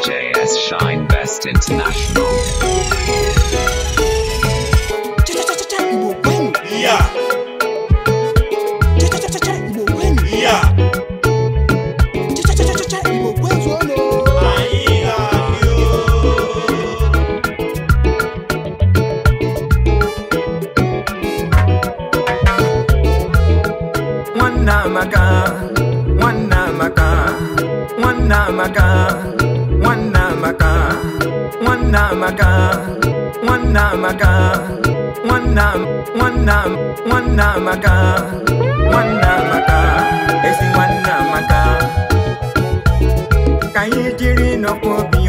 DJS Shine Best International. na m a amaka nwanna amaka ezi nwanna amaka ka anyị jiri nọkwa obi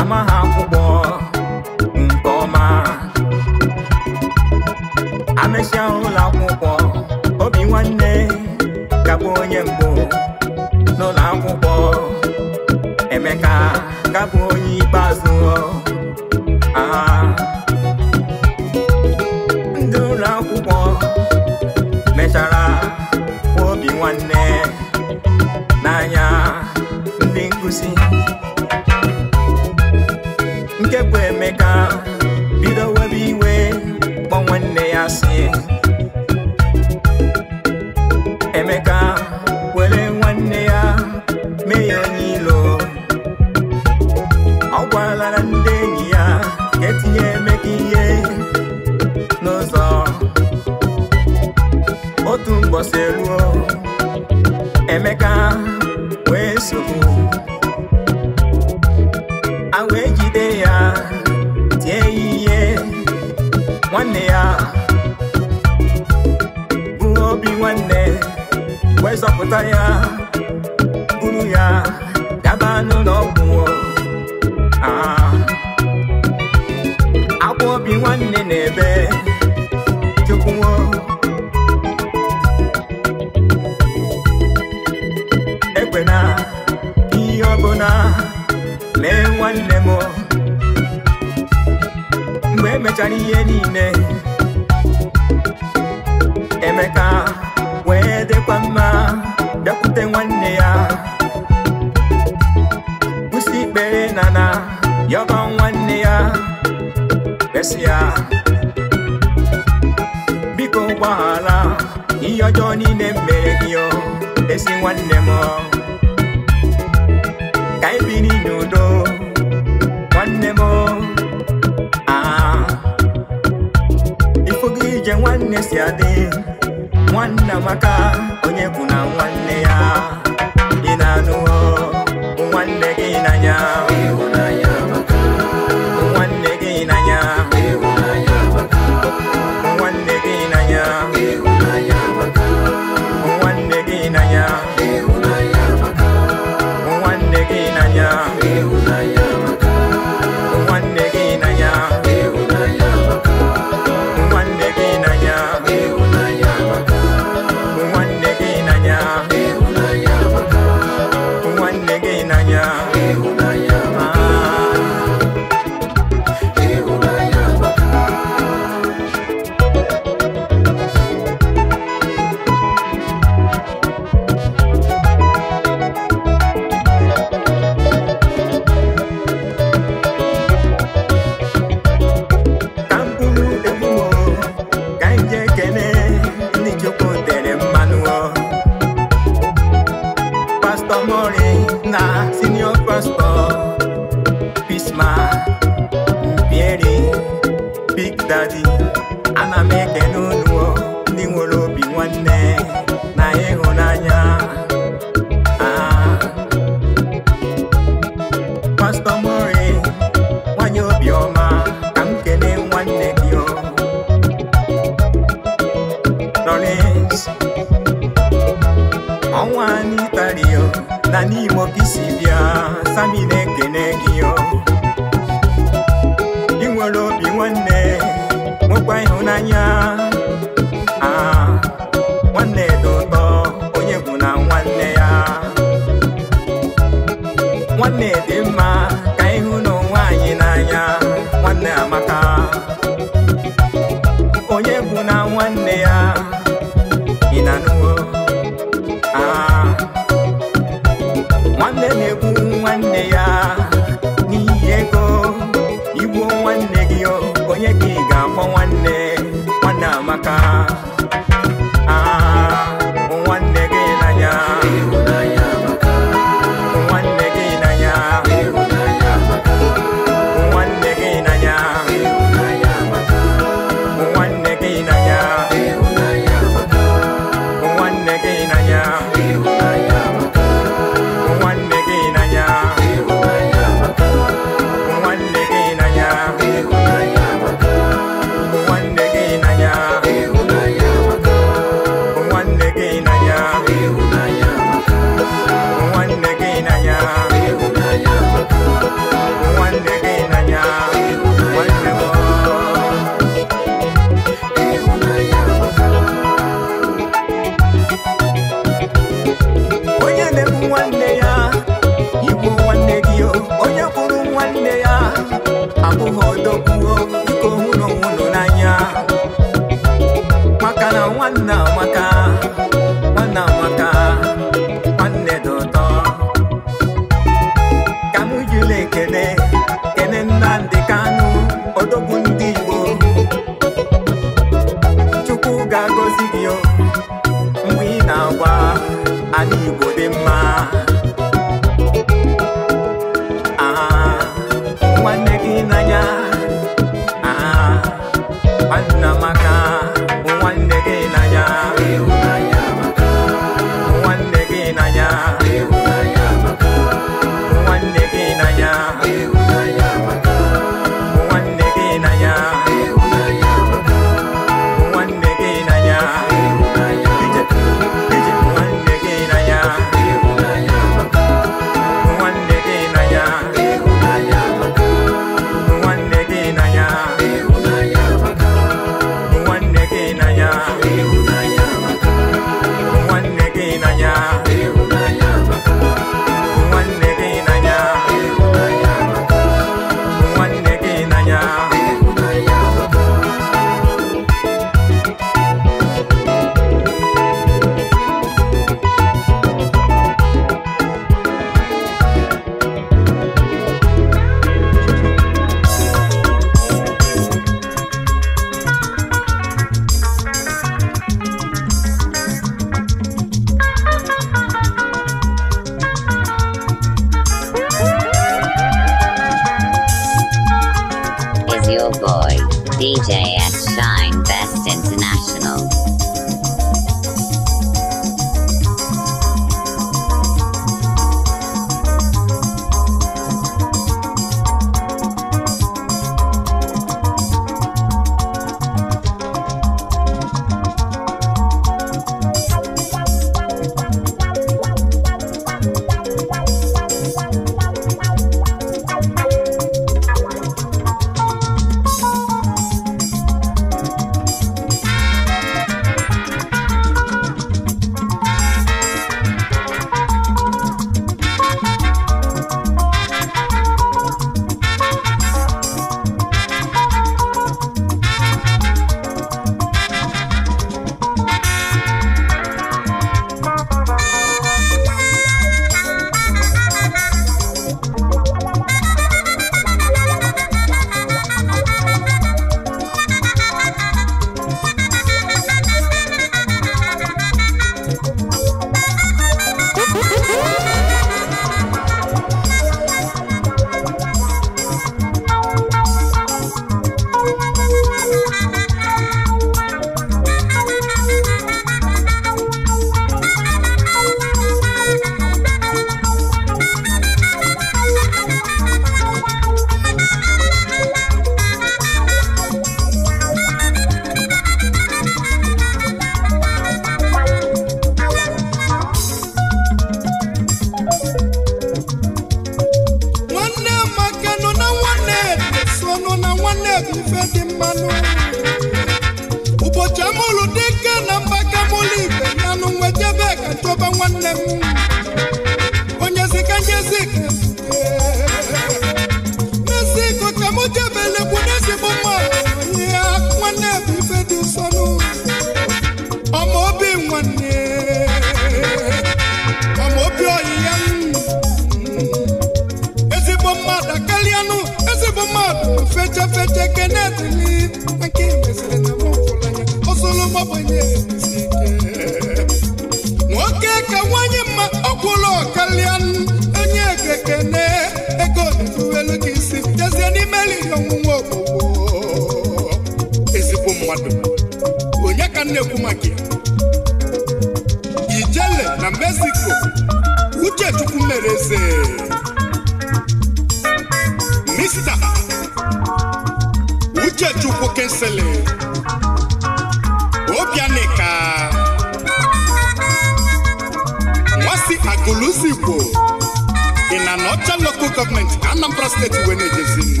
nwa igwe na-ejezi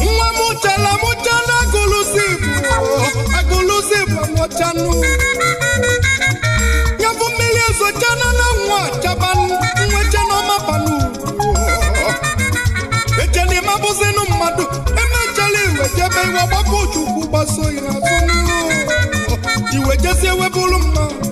nwa m chela m chela agụlụzi agụlụzi bụ nwọchanụ nyabụ mmiri ezochana na nwa chabanụ nwechana ọmabanụ echena ịmabụzinụ mmadụ emechala iwejebe iwe gbapụ chukwu gbaso ya azụ iwejezie webụrụ mma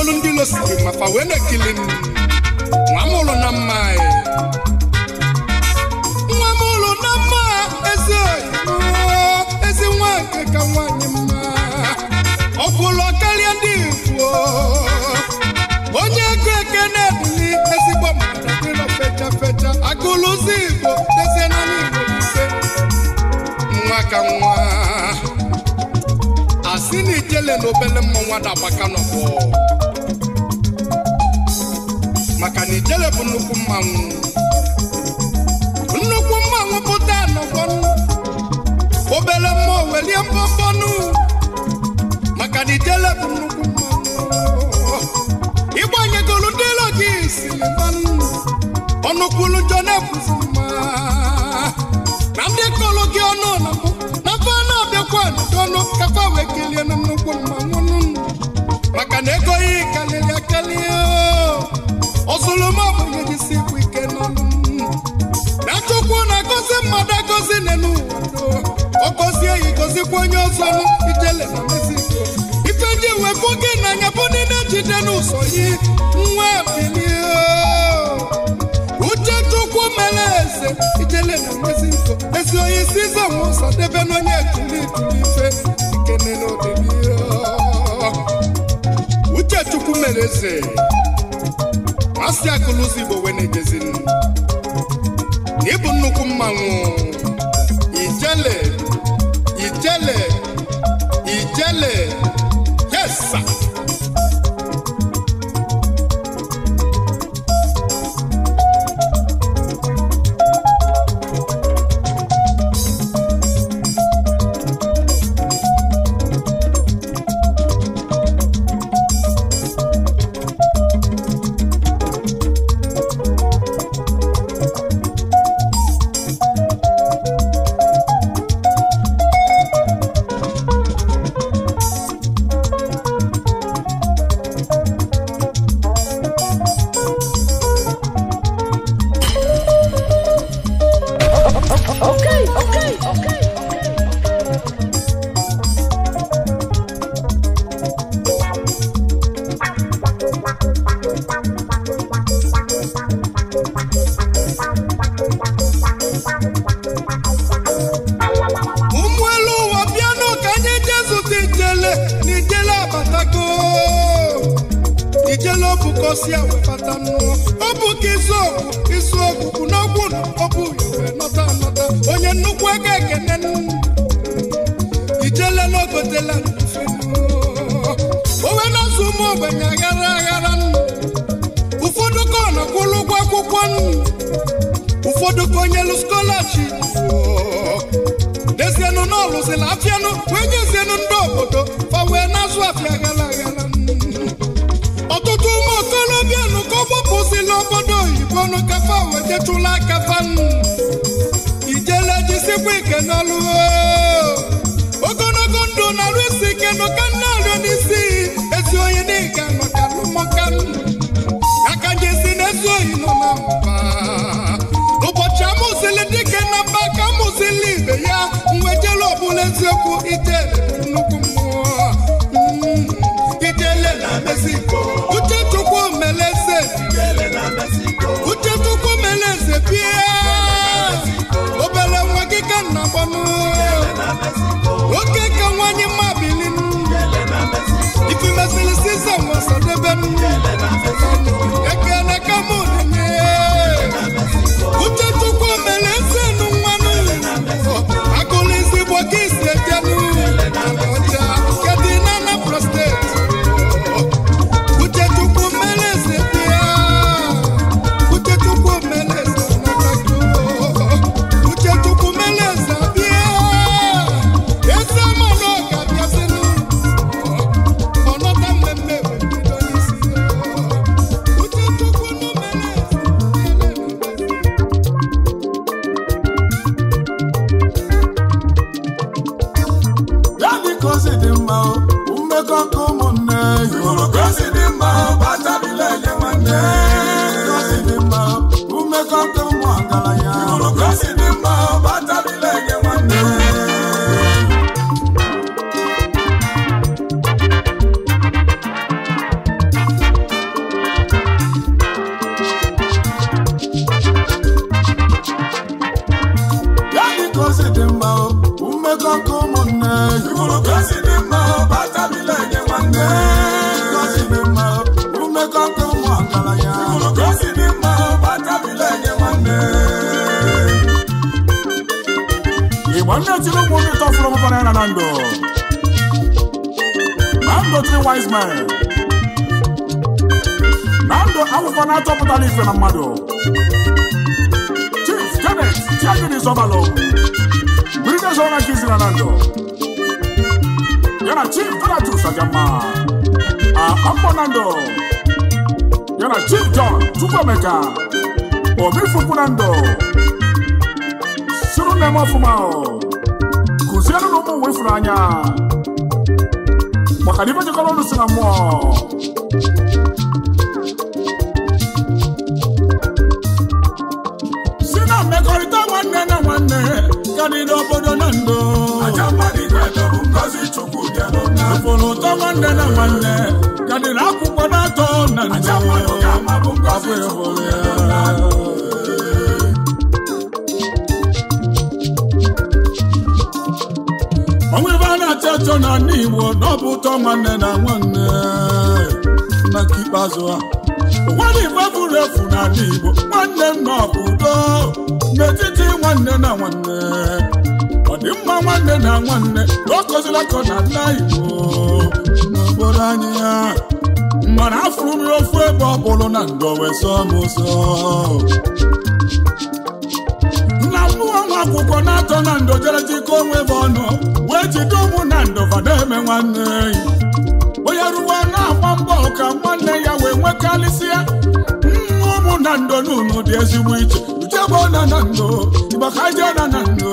obelu ndị ilo siri mafa wee na-ekili m nwa m ụlụ na mma nwa m ụlụ na mma eze ezi nwa nke ka nwanyị mma ọ kwụlọ karịa ndị igbo onye ego eke na-ebili ezigbo mmadụ dị nọ fecha fecha agụlụzi igbo dezie n'ala igbo ise nwa ka nwa si na ijele na obele mmọnwa dabaka nọbọ maka na ijele bụ nnukwu mmanwụ nnukwu mmanwụ pụta nọgbọnụ obele mmụọ welie mbọmbọnụ maka na ijele bụ nnukwu mmanwụ ịgbanyegolu ndị ilo gị silimanụ ọnụkwulu njọ na-ekwuzi mma na ndị kọlụ ọnụ ekelie na nnukwu mmanwụ maka na ego yi karịrị akeli ozuluma abụghị jisi bụ ike n'ọnụ na chukwu na-agọzi mmadụ agọzi na n'ụwa ọ gọzie ya gọzikwa onye ọzọ ijele na mexico ife ndị wepụ gị n'anya bụ na-ejide n'ụzọ yi nwa bilie uche chukwu mere eze ijele na mexico ezi onye isi ụzọ debe n'onye ekuli ife mere eze asị akụlụ ụzọ igbo wee na-ejezin ịbụ nnukwu mmanwụ ijele ijele ijele na ọ lụsịrị wee nyezienụ ndị obodo fa wee na-azụ afịa ghara aghara ọtụtụ ụmụ okorobịa ka ọ gbapụsịla obodo oyibo nụ kafa wetetụla aka fanụ ijele jisikwa ike n'ọlụ ogologo ndụ na-arụ isi ike nụ ka nna arịọ n'isi nnukwu ijele bụ nnukwu mmụọ mm. ijele na Mexico uchechukwu meleze uchechukwu meleze bie obere nwa gị ka nna gbanụ oke ka nwanyị mma ya na chief donatus ajama akpọnando ah, ya na chief john chukwuemeka obifukwuna ndụ suru na-eme ọfụma kụziere na ụmụ nwe ifuru anya maka na ibe jekọrọ ọnụ si na mmụọ si na nwanne na nwanne ka dị n'obodo na ndụ aja mmadụ igwe bụ fụrụ ụtọ nwanne na nwanne ya dịrị akwụkwọ na-atọ na nje ọbụ ịhụrụ ya onwe ebe a na-achọ achọ na ndị Igbo n'ọbụ ụtọ nwanne na nwanne na nke ikpeazụ a. nwanne Igbo bụrụ efu na ndị Igbo nwanne nna ọbụ udo n'etiti nwanne na nwanne nwanne na nwanne na ọkọzila ka ọ na-ala igbo n'obodo anyị ya mana afụrụ m ofu ebe ọ bụrụ na ndụ wee sọ m nna mmụọ nwa akwụkwọ na-atọ na ndo jere jikọ onwe ebe ọnụ wee jide ụmụ na ndụ na eme nwanne onye ruwe na-agba mbọ ka nwanne ya wee nwekarịsịa ụmụ na na n'ụlọ dị ezigbo iche uchebụ na na ndo igbakajena na ndụ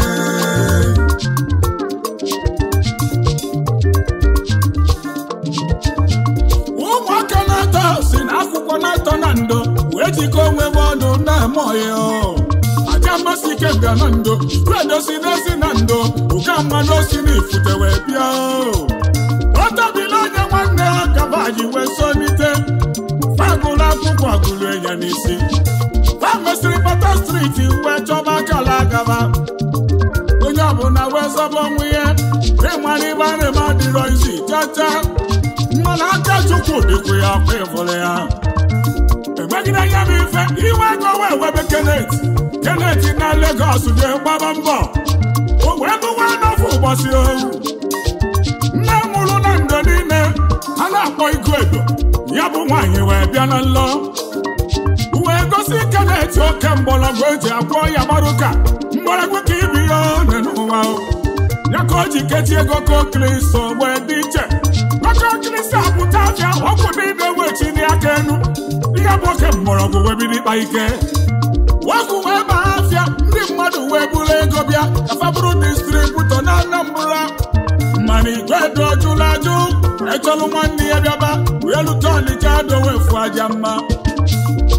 ejika onwe m ọnụ na-amụghị aja mmasị ike bịa na ndo tuedosi n'ezi na ndo ụka mmanụ osi na ifute wee bịa ọtọbila onye nwanne ha kabaji wee sonite fagụlụ akwụkwọ agụlụ enye n'isi famesịrị pata striti wee chọba akala agaba onye ọbụla wee zọba onwe ya ịmara ibe arịma dịrọ izi chacha mmanụ aka chukwu dịkwa ya afọ ịfụrụ ya gbagide anya m iwe ego wee webe kenet kenet na Lagos jee gbaba mbọ o wee bụwa n'ofe ụbọchị ohu nne na ndo niile a na-akpọ igo edo ya bụ nwaanyị wee bịa na nlọ wee gosi kenet oke mgbọrọgwụ eji agwọ ya gbaruka mgbọrọgwụ ka ibi ya one n'ụwa ya ka o ji kechi ego kokristo wee dị iche aka okristo apụta afịa ọgwụ ibe wechi dị aka enu afịa bụ oke mgbọrọgwụ wee bido ịkpa ike wepụ wee baa afịa ndị mmadụ wee bụrụ ego bịa afabụrụ distributọ na Anambra Mmanụ igwe dị ọjụla ajụ echọlụ nwanne ya bịaba wee lute Ọnịcha adowefu aja mma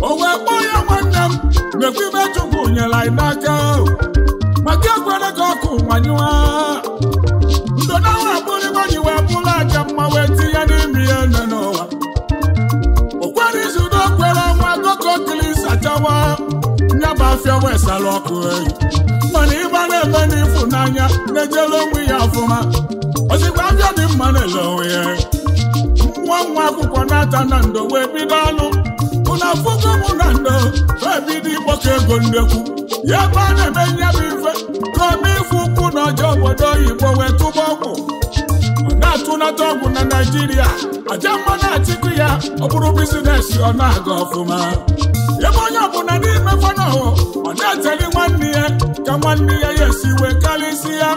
o wee kpọọ ya nwanne m mekwa ibe chukwu nyere anyị n'aka maka ekwere ka ọkụ nwanyụwa ndona ahụ abụrụ ibe ji wee bụrụ aja mma wee tinye n'ime ya na afịa wesara ọkụ eyi mana ịgba na-eme n'ịfụnanya na-ejela onwe ya ọfụma ozigbo afịa dị mma na-ele onwe ya nwa nwa akwụkwọ na-ata na ndo wee bido ọnụ ụna afụgo mụ na ndo wee bido ịkpọkọ ego nnekwu ya ebe a na-eme nye bụ ife ka ome ịfụ ụkwụ na ọjọọ obodo oyibo wee tụba ọgwụ na-atụnata ọgwụ na naijiria aja mma na-achịkụ ya ọ bụrụ bizinesi ọ na-aga ọfụma ebe onye ọbụla n'ime fanahụ ọ na-eteli nwanne ya ka nwanne ya ya esi wee karịsị ya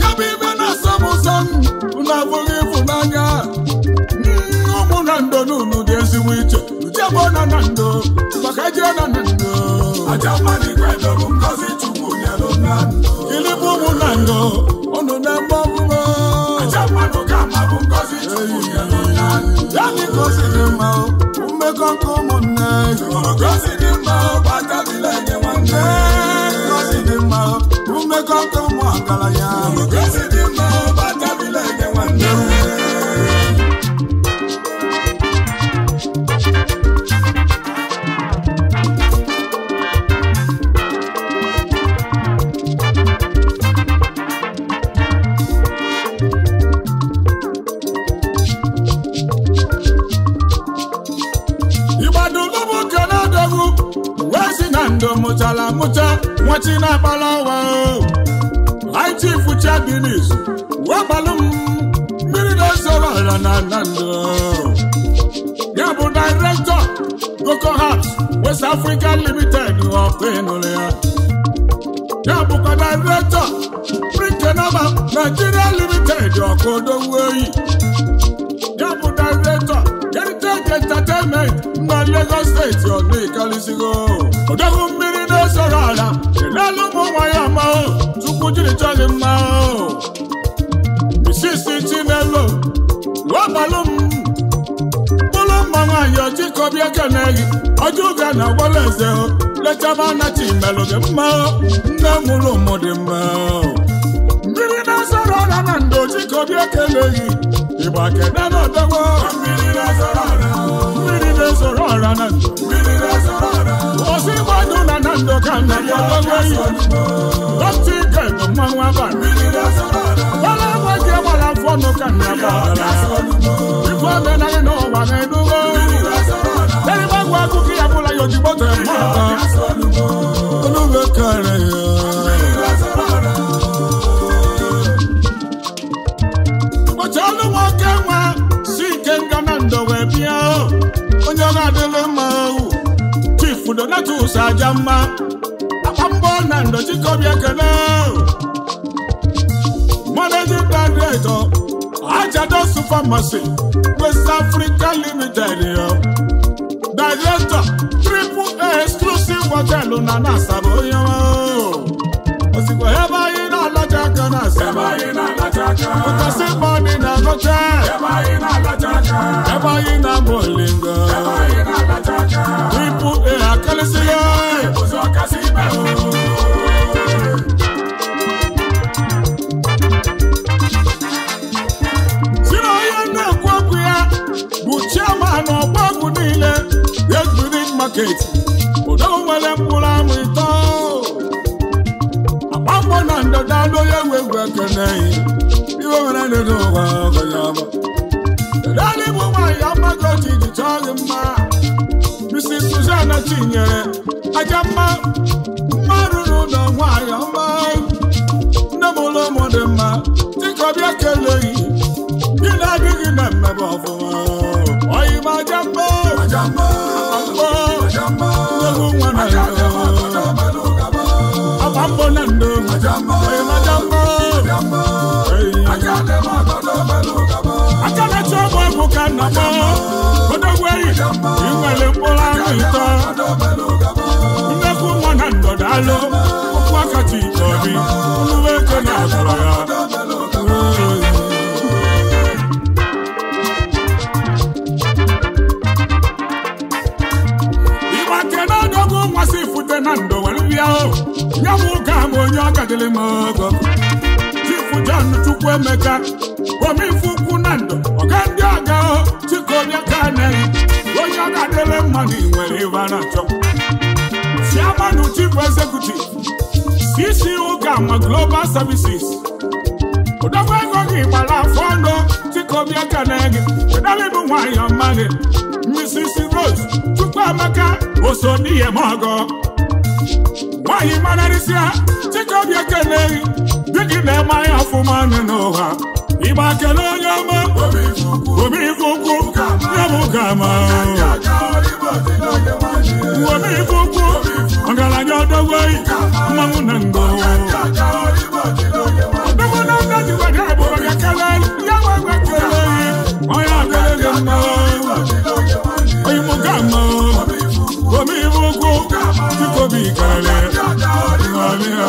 ya bụ ibe na-asam ụzọ na abụghị ịfụnanya ụmụ na ndo n'ụlọ dị ezigbo iche ujebụ na na ndo maka jee na na ndo ilibụ ụmụ na ndo unu na-egbe ọbụbọ ya dị ka o siri mma mmekọ nke ụmụ Gracias. na nwachina akpalawa Light Chief Chagbinis wegbalụ m mmiri na-ezoro ala na Nando ya bụ Director Coco Heart West Africa Limited ọkụ ịnụrụ ya ya bụkwa Director Brinkenoba Nigeria Limited ọkụ odogwu oyi ya bụ Director Heritage Entertainment na Lagos Steeti, ọdụ ikalisigo odogwu mmiri onye zọrọ ala chelelu ụmụ nwa ya mao tupu jiri chọ gị mma isisi chinelo wegbalụ m bụrụ mma nwaanyị ọchịkọbịa ekene gị ọjọ oge na agwala eze lechaba anachi melụ gị mma nne mụrụ ụmụ dị mma mmiri na-azọrọ ala na ndo ọchịkọbịa ekele gị ịgba mmiri na ọdọgbo mmiri na-ezoro Mmiri na ndo ozi gbadu na na ndụ ka na ọgbago iyi otu ike bụ mmanwụ abalị gbala agwa gị gbara afọ nụ ka na gbadara ife omenarị n'ụwa na-edugo eribagwa akụkọ ya bụla ya ojigbo tere Ọnụ kere ya nwoke nwa si ike bịa ọ ga obodo na-atụsa aja mma akpa mbọ na ndochikobi ekele managing director ajado supermarket west africa limited director triple exclusive hotel na na asaba onye osikwa ebe anyị laja ganas. Eba ina laja ganas. Uta se mami na noche. Eba ina laja ganas. Eba ina molinga. Eba ina laja ganas. Ipu e akalisiye. Ipu zo kasibe. Sino ye ne kwakuya. Buchia mano kwaku nile. Yes, within market. Odo wale mkula mwito. na ndị onye egwu egwu ekene iwe mere n'elu ụwa ọgọnya ọma naanị bụ nwaanyị amaghị ma iji chọọ gị ma Mrs. Suzanna Chinyere aja mma mma rụrụ ụlọ nwaanyị nọkọ odogweri inwere mkpụrụ anụ ụtọ nnekwu mụ na ndọdalụ okwu akati nke obi oluwe ego na-azọrọ ya ịgbake na nwasị na m onye ọ m ogo chifu John onye ka na-eyi onye ọ ga-adịle mma na ị nwere ibe na-achọ chairman chief executive cc ụka ma global services ụdọgba ego gị gbara afọ ọnụ dịka obiaka na-ege ụdalịbụ nwanyọ mmadụ, mrs rose chukwu amaka oso n'ihe m ọgọ nwaanyị manarịsịa dịka obiaka na-eyi dị gị na-eme anya ọfụma nụ n'ụwa ịgba kele agama uwome ọgaranya ọdọgwei mmanwụ na ngo ọdọgwo na ndajiwa ga abụọ ga kelel ya wagwa kelei ọya akelele mma oyimugama uwome ifuku chikobi ikarale ọlịa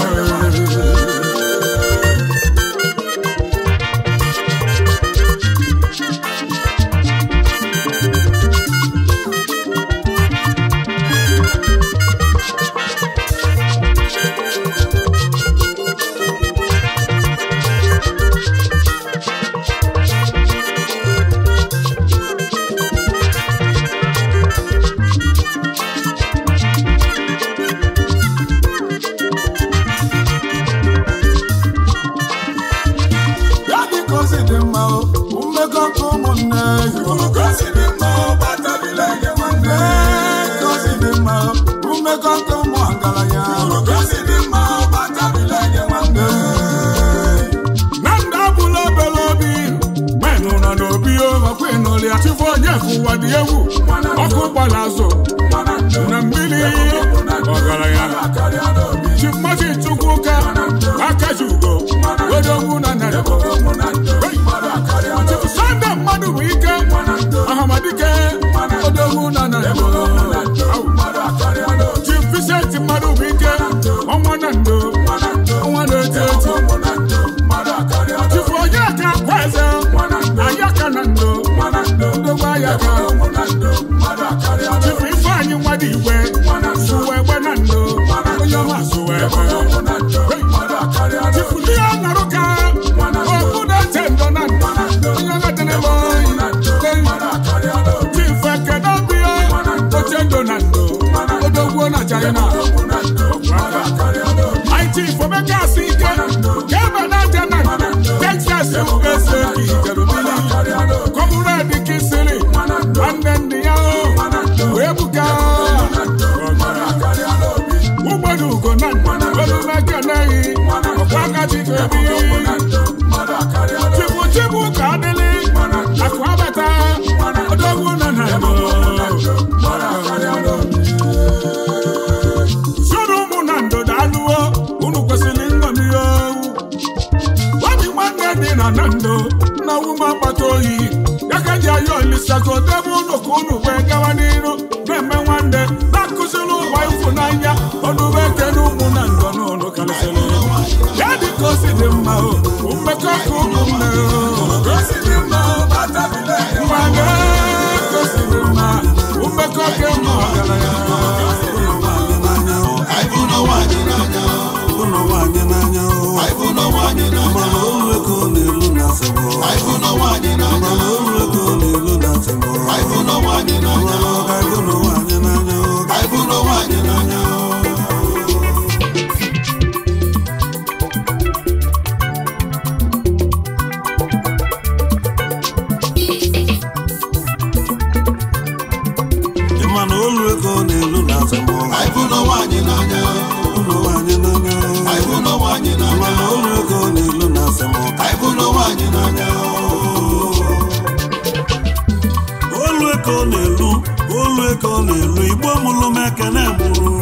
ịnọlia chụfụ onye ụwa dị egwu ọkụ gbara azụ na mmiri ọgaranya chimachi chukwu ka aka ji ugo wedogwu na narị Tupu ife anyị na ka okwu na-eche na na na chukwu ka adịla akụ abata odogwu nọ na ụmụ na ndodo alụwo unu kwesịrị nṅomihe obi nwanne dị na na ndo na akpata oyi ya ka ji ayọ olisago debe ụlọ ka wee gawa umekọ kuku mma gosiri mma bata bile mmanya gosiri mma umekọ ke mma ọgaranya aịbụna nwaanyị n'anya ụlọ nwaanyị n'anya aịbụna nwaanyị n'anya mana olu ego na-elu na asịgbọ aịbụna nwaanyị n'anya mana olu ego na-elu na asịgbọ aịbụna nwaanyị n'anya ịbụlụ n'anya olu ọ na-elu olu eko ọ na-elu igbo mụlụ m ekene mụrụ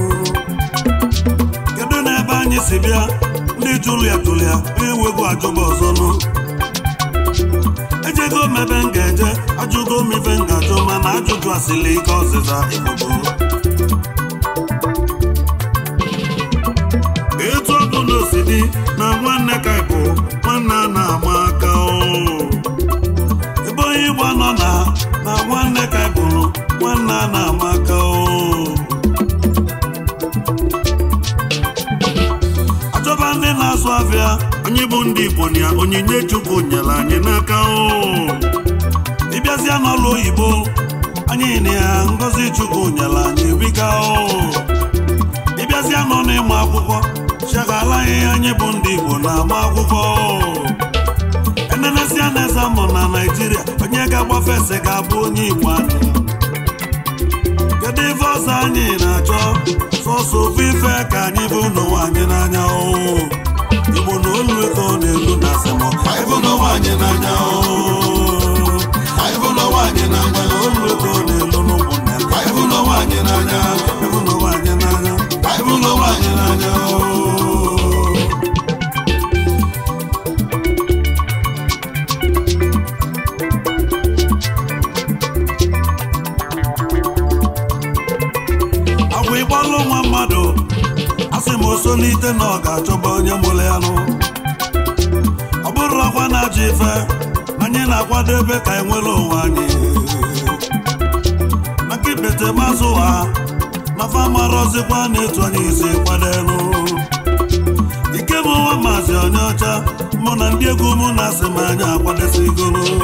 kedu n'ebe anyị si bịa ndị julia julia enwego ajụba ọzọ nụ ejego mebe m ga-eje ajụgo m ife m ga-ajụ mana ajụjụ asịlị ike ọzịza ịbụbo etu ọbụla osi dị nwanne na ama aka oh. ebe onye Igbo nọ na na nwanne ka e bụrụ. nwanne na ama aka oh. Ajọba ndị na-azụ afịa anyị bụ ndị Igbo na onyinye Chukwu nyere anyị n'aka oh. ịbịazịa n'ọlụ oyibo anyị na ya ngozi Chukwu nyere anyị biga ịbịazịa nọ ịmụ akwụkwọ chegala anyị anyị bụ ndị Igbo na-agba akwụkwọ enenesia na-eze mụ na Naịjirịa onye ga-agbafe ese ga-abụ onye Igbo anụ kedu ife ọzọ anyị na-achọ sọsọ ofu ife ka anyị bụ n'ụwa anyị n'anya Igbo na olu ego na-elu na anyị n'anya anyị n'anya anyị n'anya anyị n'anya solite na ọ ga-achọba onye mụrụ ya nụ ọ bụrụ ọkwa na-achọ ife anyị na-akwadebe ka e nwere onwe anyị maka ibete mazụ ha, na ọzịkwa na-etu anyị isi kwadelu ike bụ nwa maazị onye ọcha mụ na ndị egwu mụ na asị m anyị akwadosigoro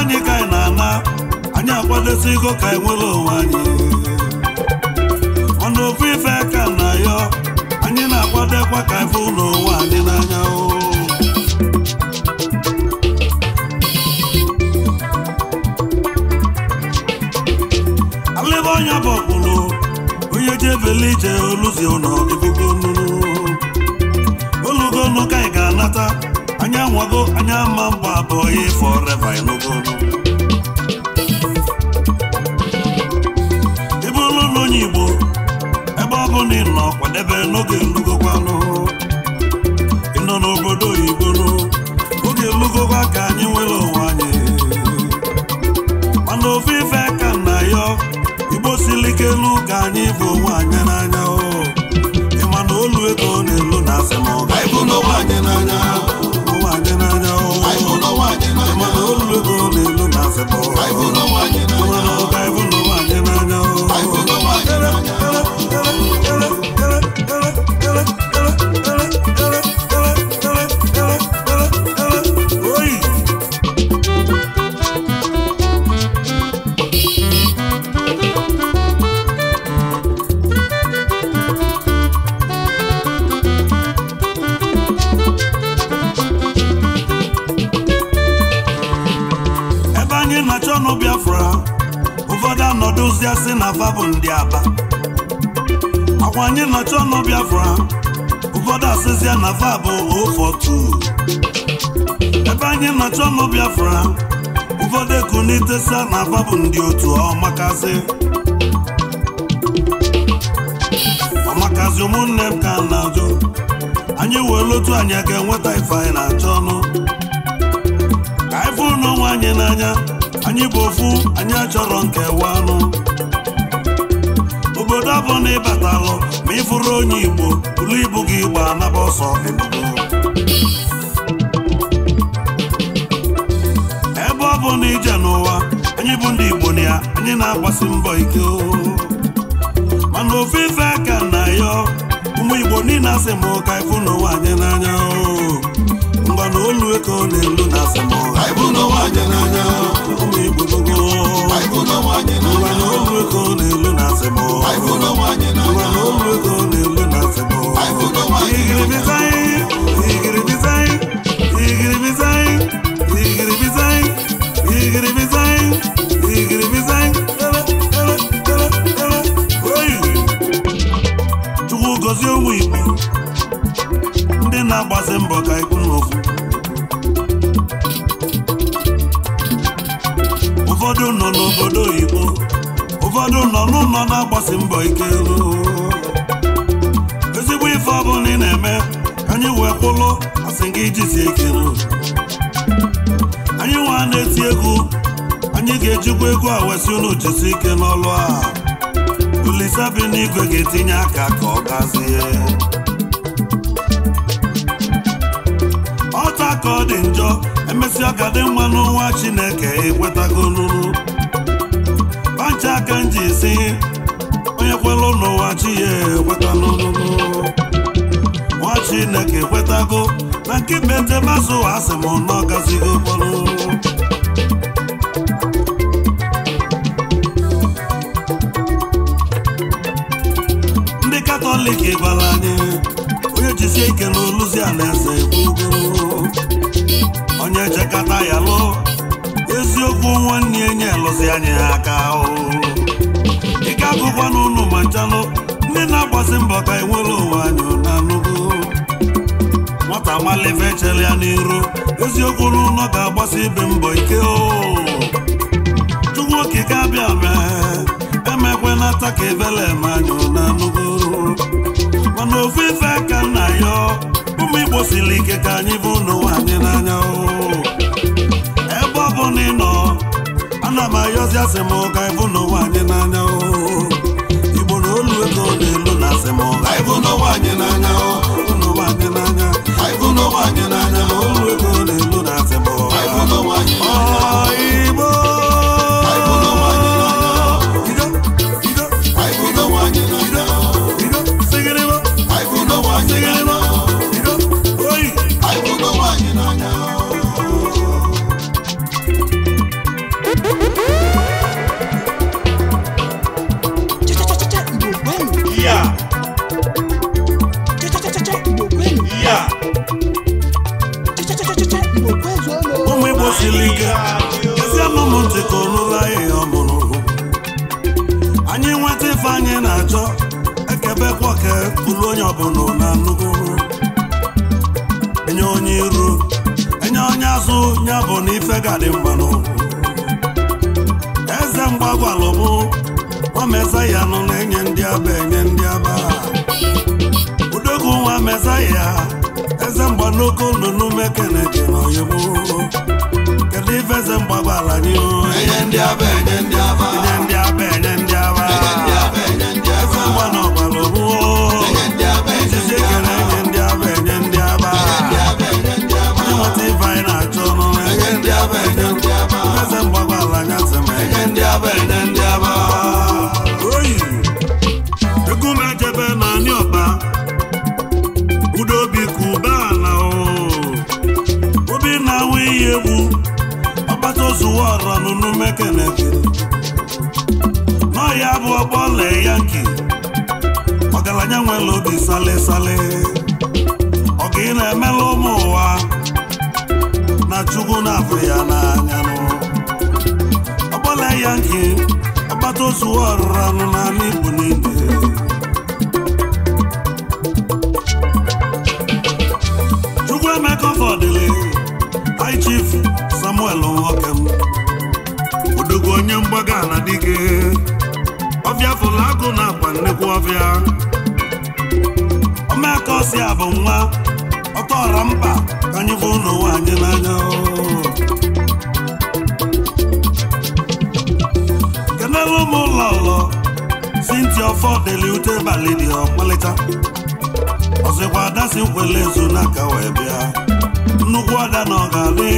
anyị ka anyị na-ana anyị akwadosi ka e nwere onwe anyị anyị na-akwadokwa ka ife ụlọ ụwa anyị n'anya alịba ọnya bụ ọkpụrụ onye ji ebele ije oluzi ụlọ olugonu ka ị ga-anata anya nwago anya ma mgba abụọ ya forever ịnụgonu kwadebe n'oge lugokwanụ ị nọ n'obodo oyibo oge lugokwa ka anyị nwere onwe anyị mana ofe ife ka na ayọ, igbo siri ike ka anyị bụ onwe anyị n'anya ịma na olu ego na-elu na asị ma ọ n'onwe anyị n'anya ịma na olu ego na-elu na asị ma ọ afra ụfọdụ asịsịa na fa bụ ofotu ebe anyị na-achọ ọnụ biafra ụfọdụ eku ekunitesa na fa bụ ndị otu ọmakazị oh, ọmakazị oh, ụmụnne m ka na-ajụ anyị wee otu anyị ga-enweta ife anyị na-achọ ọnụ ka anyị fụ n'onwe anyị n'anya anyị bụ ofu anyị achọrọ nkewa ọnụ ya bụ na ịbatalụ ma ị fụrụ onye igbo buru ibu gị gba naba ọsọ ebe ọ bụ na ije n'ụwa anyị bụ ndị igbo na ya anyị na-agbasi mbọ ike mana ofe ife aka na ya ụmụ igbo niile asị m ụka ịfụ n'ụwa anyị n'anya ngwana olu eke ọ na-elu na asị m ụka ịfụ n'ụwa anyị n'anya ụmụ igbo n'ugwu ngwana olu eke ọ na-elu gozie ụmụ ndị na-agbazi mbọ ka ikwu n'ofu ụfọdụ nọ n'obodo oyibo ụfọdụ nọ n'ụlọ na-agbasi mbọ ike ezigbo ife ọbụla ị na-eme anyị wee kwụlụ asị gị jisie ike anyị nwa na-eti egwu anyị ga-ejikwa egwu a wesị unu ike n'ọlụ a Olise bi n'igwe ga-etinye aka ka ọ gazie ọta ka ọ dị njọ emesịa ka dị nwa n'ụwa Chineke ekwetagolulu ọcha aka m ji si onye kwelụ n'ụwa chi ya ekweta n'olulu nwa Chineke ekwetago na nke be njem azụ asị m nọ gazigo kpọrụ ndị katọlik gbara anyị onye jisie ike n'oluzi alaeze onye jekata ya lụọ bụ nwanne enye alụzi anyị aka dịka agụkwa na ụnụ ma nchalụ ndị na-agbasi mbọ ka enwere onwe anyị na anụgo nwata malive chere ya n'iru eziokwu n'ụlọ ga-agbasi ibe mbọ ike o chukwu okike abịa mee emekwela taa ka ebele ma anyị na anụgo mana ofu ife ka nna ya ụmụ igbo siri ike ka anyị bụ n'ụwa nwaanyị n'anya ebe ọ bụ na ị nọ ana m ayọzi asị m ụka ịbụ n'ụwa anyị n'anya igbo na olu ego na-elu na asị m ụka ịbụ n'ụwa anyị n'anya olu ụwa n'anya ịbụ n'anya olu ego ọbụla nye anụgo enye onye iru enye onye azụ ya bụ na ife gadị eze mgbagwalụmụ nọ na-enye ndị aba enye ndị aba udogwu nwa mezaya eze mgbanoko ndụnụ mekeneke na oyibo kedu ife eze mgbagwala gị enye ndị aba enye ndị aba enye ndị aba enye ndị aba ndị aka na kedu ya bụ ọgbọ lee yanki ọgaranya nwere obi sale ọ ga ị na-emela ụmụ ụwa na chukwu na afọ ya n'anya ya nke akpata ozu ọrụrụ anụ n'ala Igbo niile Chukwu Emeka Ọfọdịlị ga ala dike ọbịa fụlụ akụ na akwa nnekwu ọbịa ọmaka ọsị a bụ nwa ọtọọra mkpa ka anyị fụ ụlọ ụwa anyị n'anya kenelu m ụlọ ụlọ sinti ọfọ deli ute balị dị ọkpalịta ọzọkwa adasi si nkwele ezu n'aka wee bịa nnukwu ada na ọ ga-adị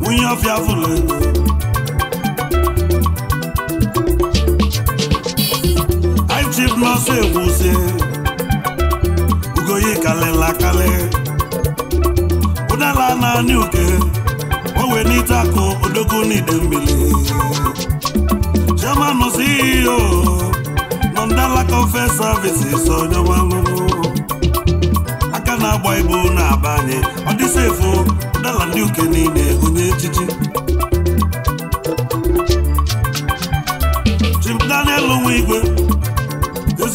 nwunye ọfịa fụlụ ego ọsọ egwuzie ugoyi kalịla kalị ụdala naanị uke ọ wee n'ite akụ odogwu n'ide mmiri chairman CEO nọ e ndalaka ofe services onye ọmalụrụ aka na-agba ibu na-aba anyị ọ sefu dala ndị uke niile onye echichi Chim Daniel igwe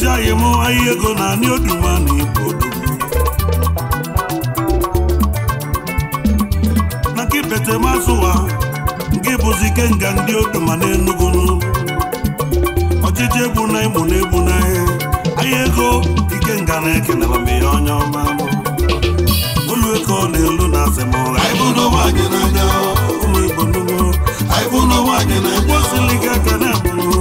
na-akụzi anyị ego ihe oduma na anị oduma na ibo maka ipetemazụ ụwa nke bụzi ike nga ndị oduma na Enugu ọchịchị egbu na ịmụ na egbu na ahịa ego ike nga na-ekenela mgbe ya onye ọma olu eko na-elu na asemụra ụmụ Igbo nnugo osili gị aka na-abụrụ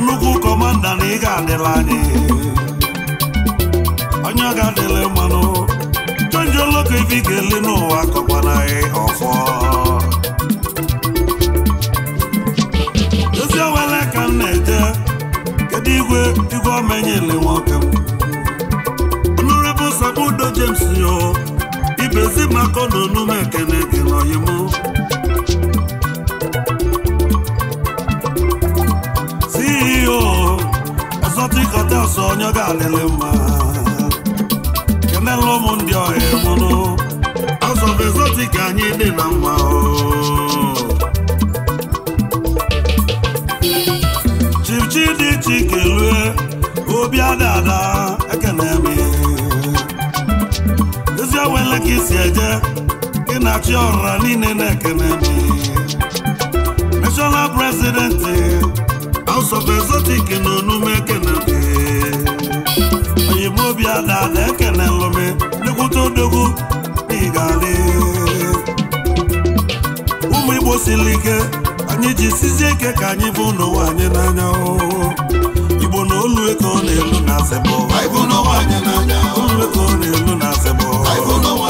nnukwu kọmanda na ị ga-adịla anyị onye ga-adịla mmanụ jonjo loko ifi ga-ele n'ụwa kọkwana anyị ọfọ ezi owele ka m na-eje kedu igwe igwe omenyele nwoke m Sabudo James yo ibezi maka ọnụ nume ekene gị n'oyimu onye ọ ga-adịlị mma kenela ụmụ ndị ọhịa mụnụ azọbezozi ka anyị dị na mma chipchi dị chike lue obi adada ekene m ezi ewele ka isi eje ị na chi ọrụra niile na-ekene m national president House of Exotic na onume ekene m obi adada ekelelụ m nnekwute odogwu n'ịgale ụmụ igbo siri ike anyị ji sizie ike ka anyị bụ n'ụwa anyị n'anya igbo na olu ego na-elu na olu na-elu na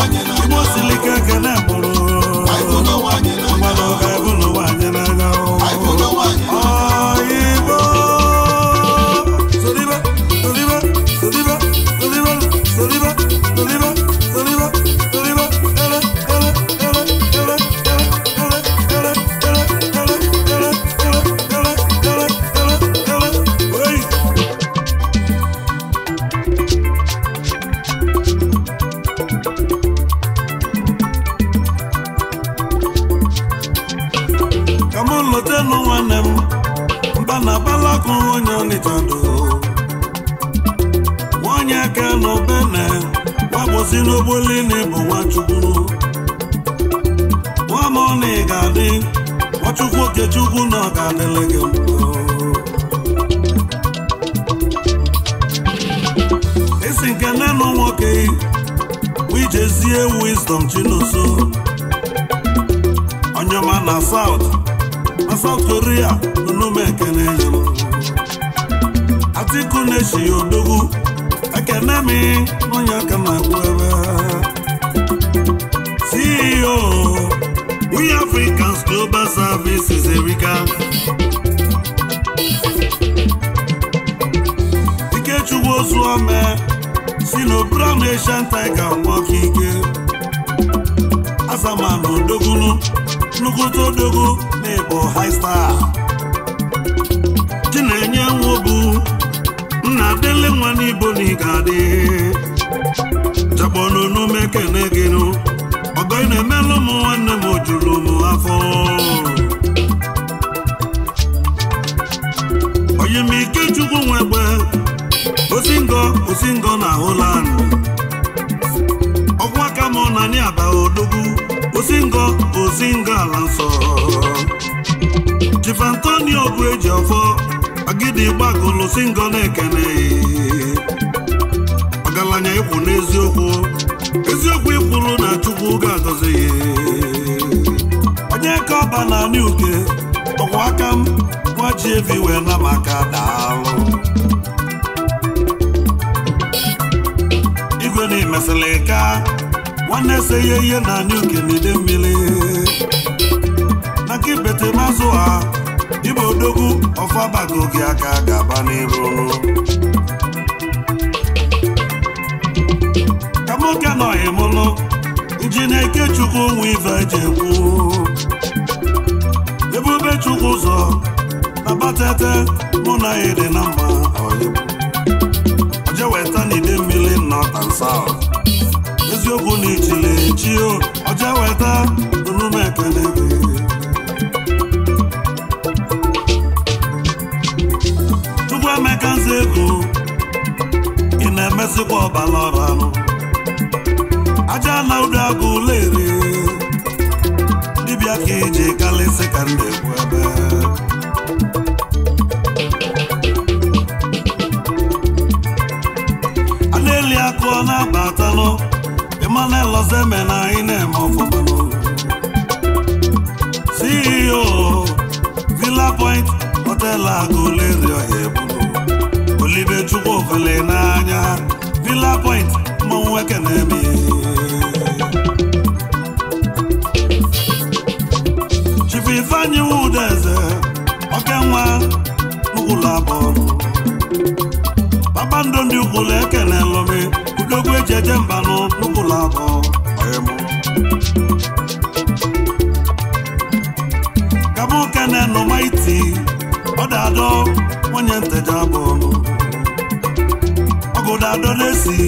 lórí à olúmẹ̀kẹ́ni yòó. Atiku na-eshi odogwu ekene m onye aka na-agwụ ebe CEO We Africans Global Services Erika Ikechukwu Ozuome si Asian Tiger nwọka ike Azaman nnukwute odogo na ịbụ high star chinenye nwobu nna dele nwa n'ibo na ịga adị jakponunu mekene gịnụ ọgọ ị na-emelụ ụmụ nwanne m o juru m afọ na-asị ndị ala nsọ Chief Antonio bụ eji ọfọ agidi na-ekene ọgaranya ịkwụ n'eziokwu eziokwu ikwuru na Chukwu ga-agọzi ya onye ka ọba na uke ọkwa aka m nwa ji evi wee na maka daalụ igwe na-emesịlị ka nwanne ese ya ihe na anyị dị mmiri maka ibete mazụ ha ibe odogwu ọfabago gị aka ga-aba n'iru ka nwoke anọghị e mụlụ iji na Ikechukwu chukwu onwe ife eji ekwu ebube chukwu ụzọ na batete mụ na ya dị na mma na ide mmiri nọ eziokwu na ichile echi ọja weta nụrụma ekele gị chukwu emeka nze ego ị na-emesịkwa ọbara ọbanụ aja na ụdọ agụ ụlọ ere dibịa ka eji kalịsị ka ndị egwu ebe a na-eli akụ ọ na-abatalụ mmanụ elozeme na eme na-eme CEO Villa Point hotelu agụleri ọhịa ebudo olibe chukwu ofele n'anya Villa Point mmanwụ nwoke na okenwa n'ụlọ abụọ kpakpando ndị ukwulu ekere jeje mba n'ụlọ abụ ọyịmụ kabụ kene nọ maiti ọ dadọ nwunye nteja abụ ọnụ ọgụ dadọ na-esi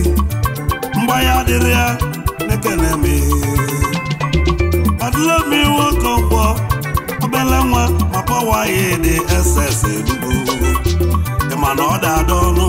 mgbanya adịrị ya n'ekene me adịla m iwe oke ọgbọ obele nwa ma pọwa ya dị ss elugo ịma na ọ dadọ ọnụ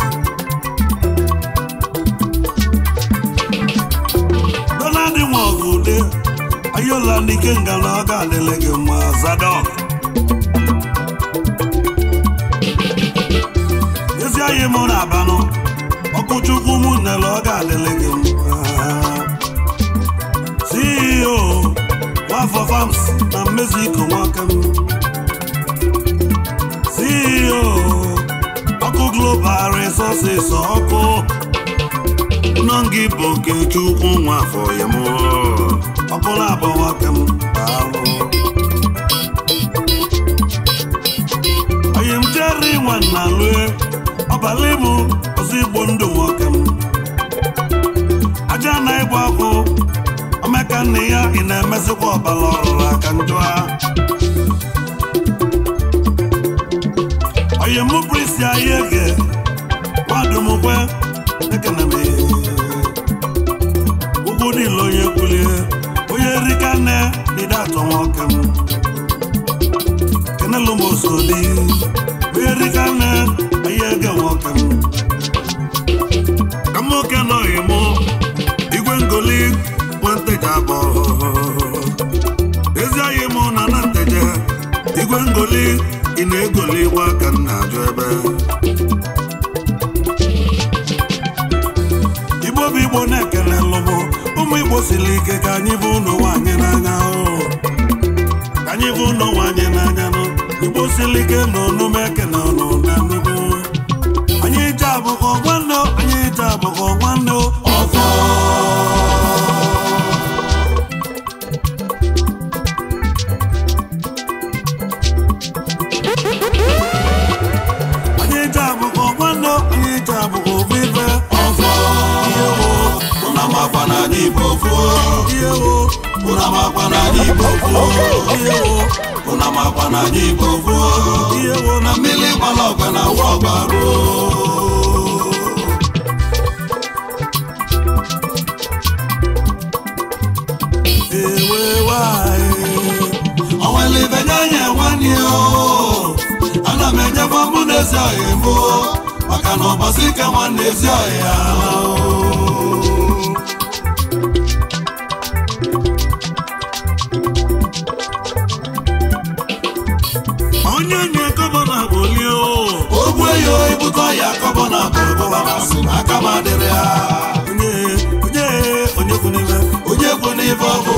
ọbụla ndị ikenga na ọ ga gị mma Zadok ezi anyị m na abanụ ọkụchukwu m nele ọ ga gị mma CEO Nwafọ Farms na mmezi iko nwaka m CEO ọkụ Global Resources ọkụ nọ gị bụ Okechukwu Nwafọ ya mụọ ọbụla abụọ ka m yi m jere nwa na lue ọbala ịmụ ọzọ igbo ndụ nwoke m aja na ịgba ọkụ omeka nne ya ị na-emezikwa emesikwa ọbala ọrụrụ aka njọ onye m bụ isi ahịa ege nwadumkwe nsogbu merikana ihe nwoke m ka nwoke nọghị mụ igwe ngoli m na na igwe ngoli ị na-egoli aka ebe igbo igbo na-ekele ụmụ igbo siri ike ka anyị bụ ụlọ nwanyị n'anya anyị bụ ligando no na igbo ruo na mmiri gbara ọgba na awa ọgba ruo ana m enyebe ọmụ na ezi ọhịa mbụ maka na ọbọsị na nwanne ezi ọhịa gọvanọ aka m adịrị ha onye kwu n'ibe onye kwu n'ibe ọ bụ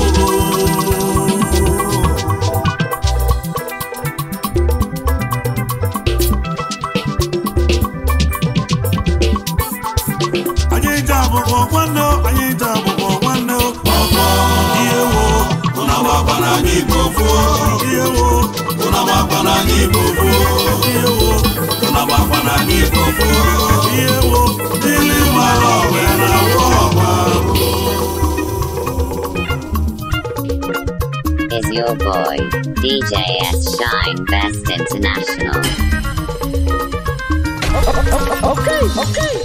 Igbo gboo ihe wo ụnụ agbakwa n'anya na na Is your boy, DJ S. Shine Best International. Okay, okay.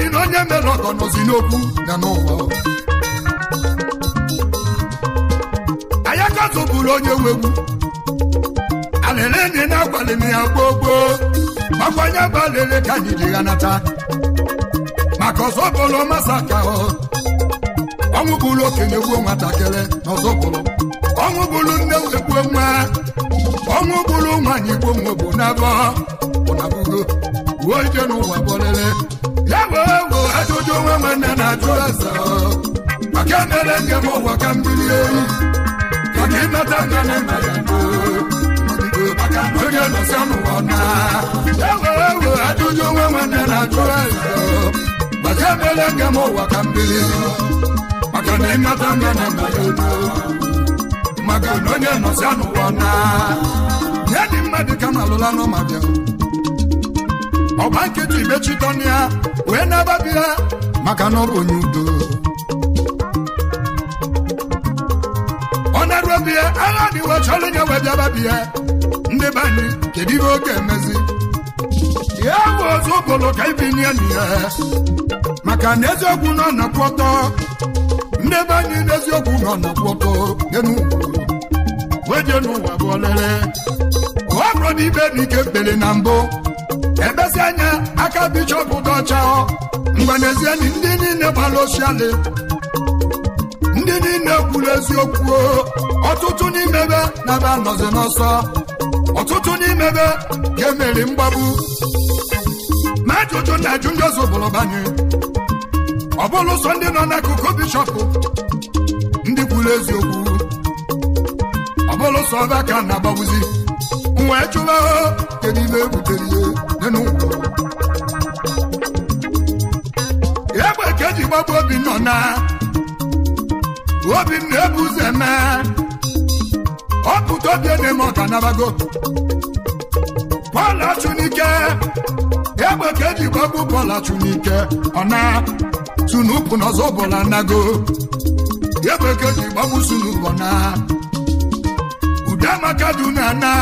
dị na onye mere ọgọ nọzi n'okwu na n'ụwa ayaka zoburu onye wegbu alele na akwalili ya gboo gboo makwanye bụ ka anyị ji ya nata maka ọzọ bụrụ masa ka ọnwụ bụrụ okenye gbuo nwatakịrị na ọzọ bụrụ ọnwụ bụrụ nne wegbuo nwa ọnwụ bụrụ nwaanyị gbuo nwa bụ n'abọ ụnabụgo uwe ije n'ụwa owo ajụjụ nwa nwanne na-ajụ maka emere nke ụwa ka mmiri ehi maka na maka onye nọsa n'ụwa maka ka na ịnata na na ọgba ya wee na-agbapụ ha maka na ọ onye udo ọ na-arụ obi ya agha dịwa chọrọ onye wee bịa gbapụ ya ndị be anyị kedu ihe oge emezi ya bụ ọzọ ụbụlụ ka ibi nye ya maka na eziokwu nọ nọkwụ ọtọ ndị be anyị n'eziokwu nọ nọkwụ ọtọ wee jee n'ụwa bụ olele ọ bụrụ na ibe dị ike kpere na mbụ ebezi anya aka bishọp dọchao mgbe n'ezie ndị niile gbara oshiali ndị niile kwuru eziokwu ọtụtụ n'imebe na be anọzi n'ọsọ ọtụtụ n'imebe ga-emeri mgbagbu ma ajụjụ na ajụ ndị ọzọ bụrụ banye ọ bụrụ sọ ndị nọ n'akụkụ bishọp ndị kwuru eziokwu ọ bụrụ sọ ọba ka na-agbawuzi wee chụwa kedu ibe ebutere ya egbe ka eji gbagbu obi nọ na obi m na-ebu ụzọ eme ọpụta obi na ọka nabago Pọl Achụnike egbe ka eji gbagbu Pọl Achụnike ọ na sunupụ n'ọzọ bụla nago egbe ka eji gbagbu sunupụ na Udeamaka du na na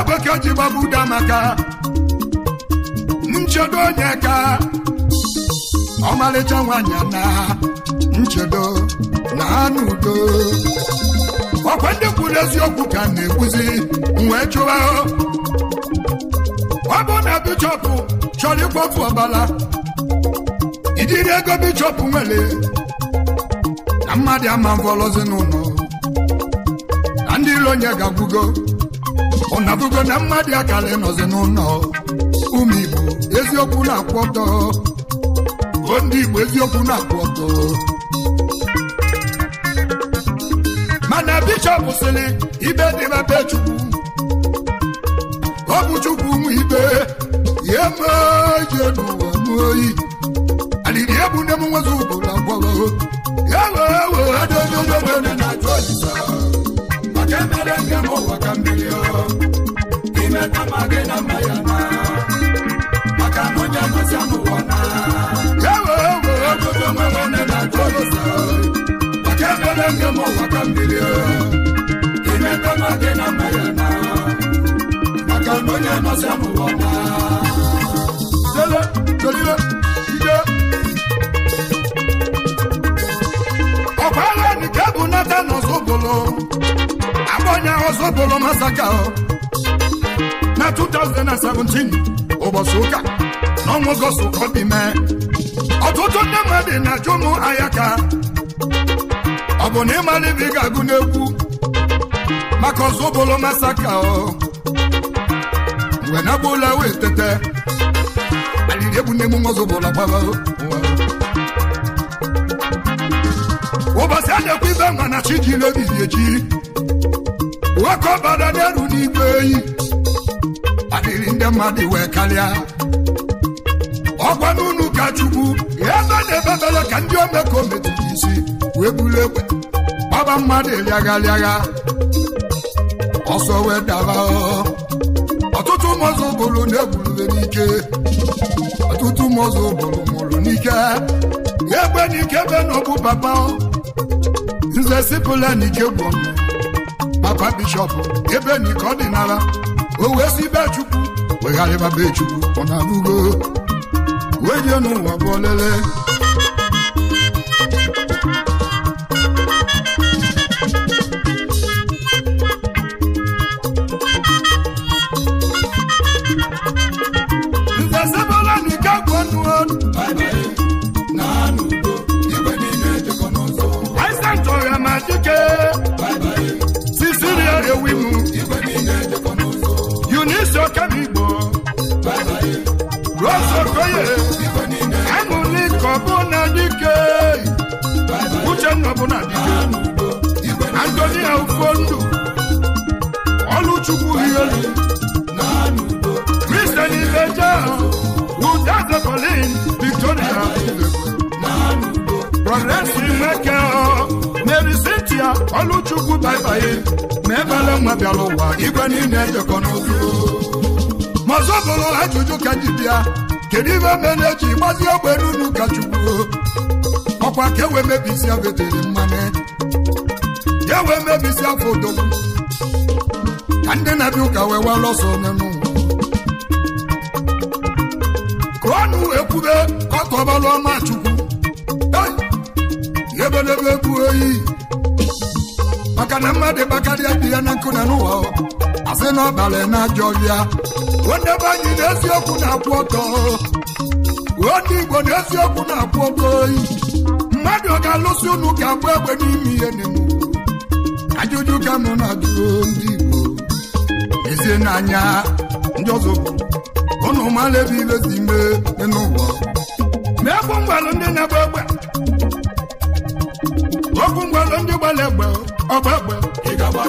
ebe ka ji gbagbuda maka nchedo onye ka ọmalịcha nwanyị na nchedo na anụ udo ọkwa ndị kwuru eziokwu ka na-ekwuzi wee chụwa ọ bụ na bishọp chọrọ ịkwafu ọbala, ijiri ego bishọp nwere na mmadụ ama mvọlọzi n'ụlọ na ndị iro onye ga-agwugo ọnabugo na mmadụ akara nọzi n'ụlọ ụmụ igbo eziokwu na-akwụ ọtọ o ndị igbo eziokwu na-akwụ ọtọ mana bishọp sịrị ibe dị mebe chukwu ọ bụ chukwu ibe ya n'ụwa egbu nne ọma maka ọ na nke ka mmiri imeta na na na na 2017 ụbọchị ụka n'ọnwa ọgọstụ ka ọ dị ọtụtụ ndị mmadụ na-ajụ ụmụ ka ọ bụ na ịmara ibe ị ga-agụ n'egwu maka ọzọ masaka mgbe na wee tete egbu ọzọ bụla ụbọchị a na-ekwu ibe mma na chi ji adịrị ndị mmadụ wee karịa ọgwa n'ụlọ ka chukwu ebe na bere ka ndị omekome jiri isi wee buru egbe gbaba mmadụ rịagharịagha ọsọ wee daba. ọtụtụ ụmụzụ bụrụ na-egburu n'ike ọtụtụ ụmụzụ bụrụ mụrụ n'ike egbe n'ike ebe na papa nze sipụla n'ike gwọ papa bishọp ebe n'ike ọdịnala o wee si be chukwu wegharịba be chukwu ọ na-alụgo wee jee n'ụwa bụ abịala ụwa igwe niile ejekọ n'ozu mazụ bụrụ ajụjụ ka ji bịa kedu ibe mere eji gbazi ogbe n'unu ka chukwu ọkwa ka ewe mebisi abetere mmanụ ka ewe mebisi afọ odogwu ka ndị na-abịa ụka wee wara ọsọ onye n'ụwa kụọnụ ekwube ọtọbalụ ọma chukwu ebedebe egwu oyi maka e e na mmadụ bakarịa ya na nkụ e na n'ụwa asị na ọbalị na ajọ ya onye na Igbo na-akwụ mmadụ ọ ga-alụsị unu ga-abụ egbe n'ime ihe n'ime ajụjụ ka na ndị Igbo ezie n'anya ndị ọzọ ụnụ ebe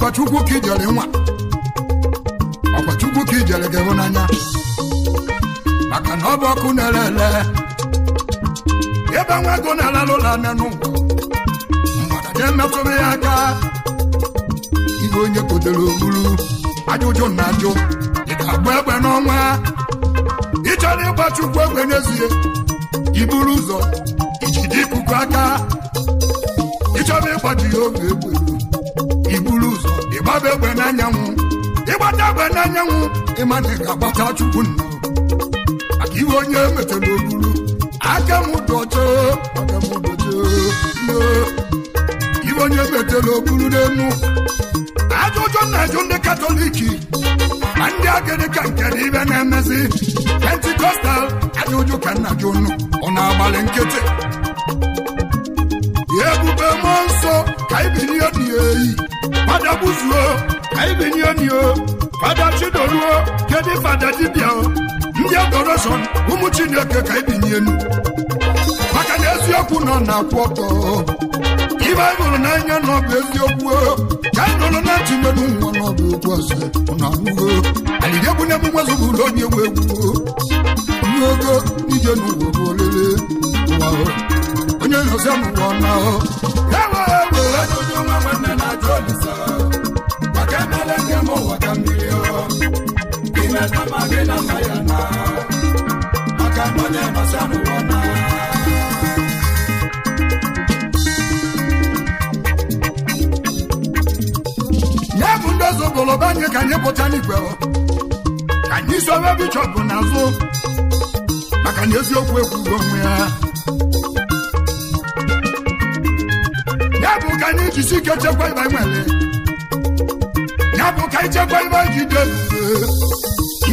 ọkọchukwu ka ijere nwa ọkọchukwu ka ijere ga-enwe maka na ọ bụ ọkụ na-ere ele ebe nwa ego na-alalụ ụlọ anya n'ụwa mgbada emepụrụ ya aka ihe onye kotere ogburu ajụjụ na ajụ ị ga-agba egbe n'ọnwa ị chọrọ ịgba chukwu egbe n'ezie iburu ụzọ dị ikuku aka ịchọrọ ịgbaji ya oge egbe mmadụ egbe n'anyanwụ ịgbata egbe n'anyanwụ ịma na ị ga-agbata chukwu nnu maka ihe onye metara olulu aka m dojo aka onye metara oburu n'enu ajụjụ na-ajụ ndị katọliki ma ndị agịrịka nke ibe na-emezi pentikọstal ajụjụ ka ọ na-agbalị nkịtị ebube mụọ nsọ ka ibiri akpụzuo anyị binye onye fada chidoruo kedụ fada dibịa ndị adoreshọn ụmụ chineke ka anyị binyenu maka na eziokwu nọ na-akwụ ọtọ ibe anyị hụrụ n'anya na eziokwu ka anyị nọrọ na ntị okwu ọzọ na emume zụbụ ụlọ onye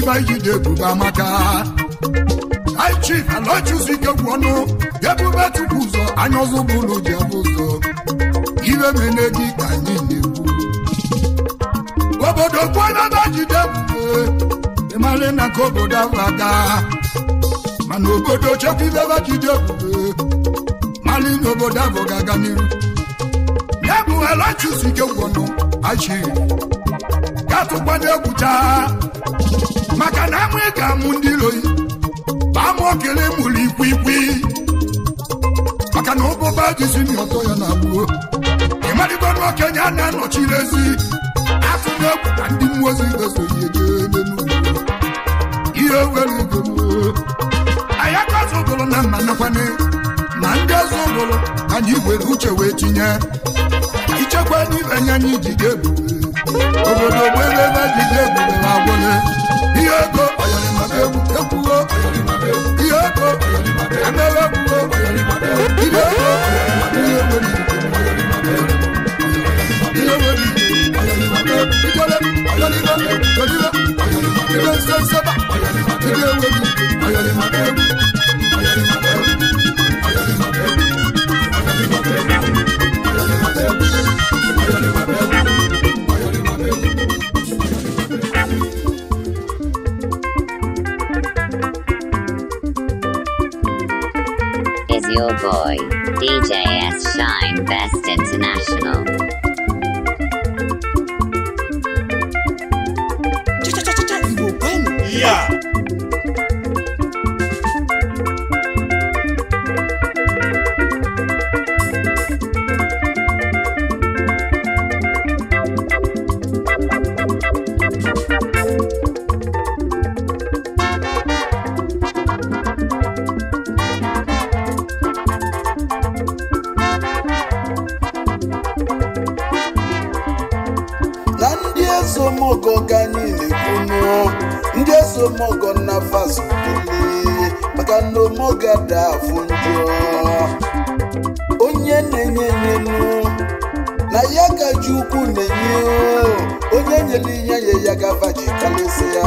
ifeanyide ebube amaka High Chief Aloysius Ikegwu ọnụ ebube tupu ụzọ anya ọzọ bụ ụlọ ji abụ ụzọ iwe mene gị ka anyị na-ekwu obodo kwanaba jide ebube ịmara na ka obodo ahụ aga mana obodo chekwa obodo ahụ ga-aga n'iru ya bụ ọnụ egwu taa maka na amụ ịga amụ ndị iloyi baa m okele mụrụ ikwiikwi maka na ụbụba jizi na ọtọ ya na-agbuo ịmarịgo na okenye a na-anọchi n'ezi atụrụ egwu na ndị mmụọ ozi ga-esonye jeebe ihe were ego anyị aka zụgụrụ na mma nakwanye na ndị ọzọ ụgụrụ anyị were uche wee tinye ichekwa n'ibe anya anyị ji ga-ebube obodo gbebe ebe ji je ebube ma gwụle ihe ego ekwugo ihe ego emebe ekwugo ihe ego ihe eweri Thank you. Boy, DJ S. Shine Best International. Yeah. chukwu na-enye onye nyere ihe nye ya gava ji kalịsị ya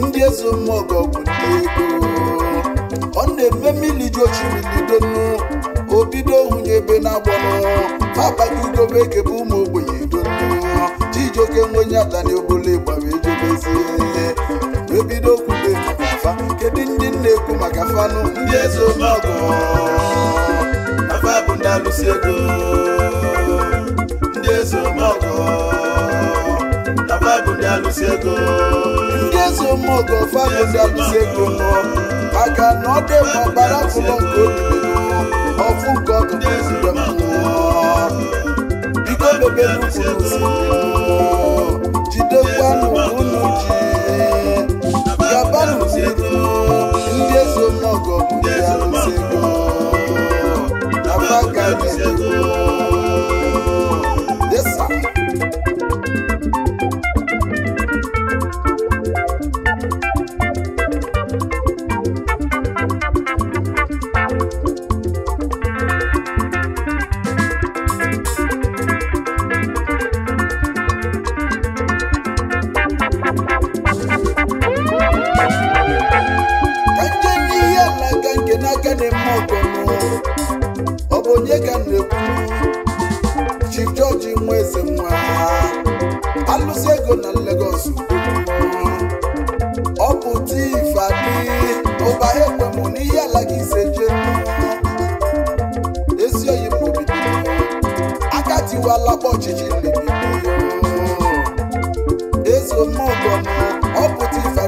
ndị eze mmụọ bụ ndị ego ọ na-eme mmiri ji ochiridonu obido hụnye ebe na-agbanụ abagidobe ekebe ụmụ ogbenye donu chijioke nwenye adana obole gbara ejebezie ebido kwube maka afa kedu ndị na-ekwu maka fanụ ndị eze omọgọ afa bụ ndị alụsi ego ogo n'Ọfagunda Olusegun ndị eze ụmụogo Ọfagunda Olusegun nọ maka na ọ dị mma gbara afụlọ nke obibigo ọfụ nke ọkụ n'ezigbo mmụọ biko bebe n'ukwu n'osimiri jidekwanụ unu ji gabanụ n'iru ndị eze ụmụogo Ọfagunda Olusegun n'Ọfagunda Olusegun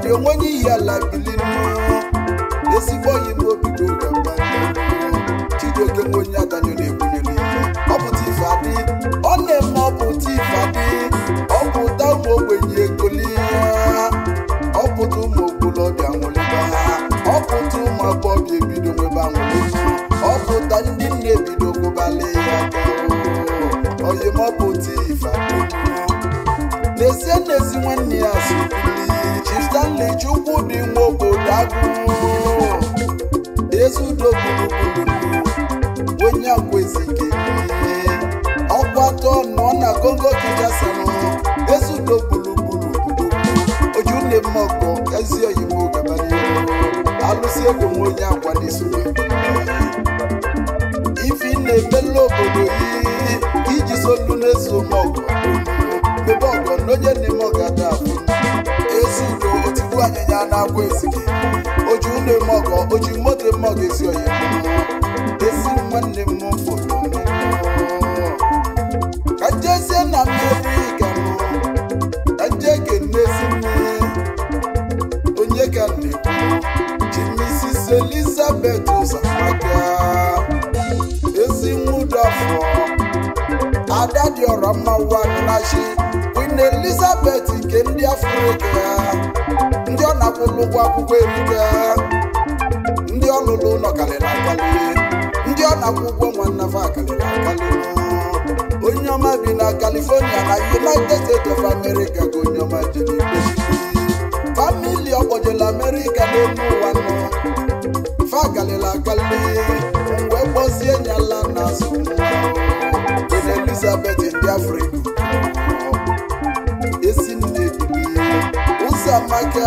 ọrịa onwe n'ihi ala bili mmụọ ezigbo oyi m obido chijioke nwe onye adanyụ na-ebunye n'ihe ọpụta pụta ife adị ọ na-eme ọ pụta ife ụmụ ogbenye egoli ọ pụta ụmụ okolobịa nwụlịba ha ọpụta pụta ụmụ agbọghọ ebido nwebe anwụlị ọpụta ndị nne ebido gụbalị ya oyimọpụta ife adị n'ezie n'ezi nwanne ya asụ Stanley Chukwudị nwe obodo agụụ ezudo gburugburu onye agwezike ọkwa atọ nọ na Kongo Kinshasa ezudo gburugburu ojunemmọkọ ezi oyibo gabara alụsị egwu nwe onye agwa n'isuwe ife na-emela obodo iji solu n'ezu mọgụ ebe ọgọ n'onye na egwu anyịnya na-akwa esike oji ụlọ eme ọgọ oji moto eme ọgọ esi oyi esi nwanne m mfụ ka njezie na mmeri ga mụ ka nje ga-enezi mmiri onye ka na-ekwu? ji misis Elizabet ụzọmaka ezi nwudafọ ada dị ọra mma wa nachi queen Elizabet nke ndị afrịka akwụlụ akwụkwọ ebuga ndị ọ lụrụ ụlọ karịrị akali ndị ọ na-akwụ ụgwọ nwanne fa karịrị nọ. onye ọma bi na Kalifonia na United States of America ka onye ọma jere famili ọkpọjela America n'elu ụwa nọ fa karịrị akali wee kpọzie nyala na azụ Elizabeth ndị Afrịka esi nne ụzọ amaka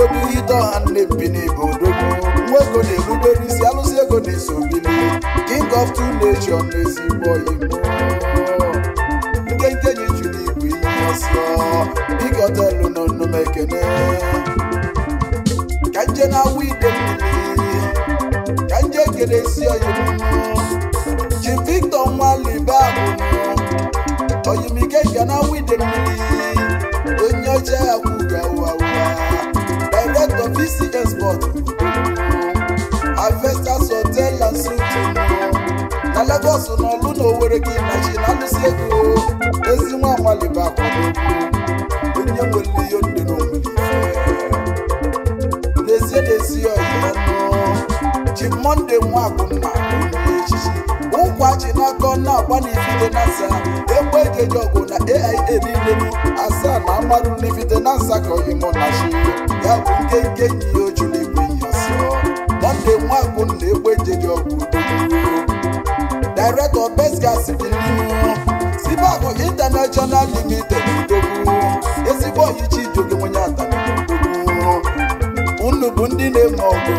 obi ihe ide nne mbini bụ odogwu na-erubere isi alụsị ego na-eso bili king of two nation n'ezigbo igbo nkenke ji juru igwe ihe ọsọ biko telu nọ nnume ekene ka nje na-awụ ide mmiri ka nje kere isi oyibo ji victor nwalibe abụrụ oyimike ga na-awụ ide mmiri onye ọcha akwụ ga awụ ụwa Director VCS Board Avestas Hotel and Suite na Lagos na ọlụ na Owerri gị na chi na-alụsi ego ezi nwa amali bụ akwado onye nwere ihe ndị n'omiri n'ezie n'ezi ọyị ya nọ ji Mọnde nwa ji n'aka na-agba n'ifide na asa ekwe ejeje ọgụ na aia niile bụ asaa na amarụ n'ifide na asa ka ọyịmụ na shi ya bụ nke nke nyi ojula egwe nyasị mọnde nwagụ na ekwe ejeje ọgụ director pesgas biliu sibabụ international limited dobu ezigbo oyichi ijogo nwonye atara unu bụ ndị na-eme ọgụ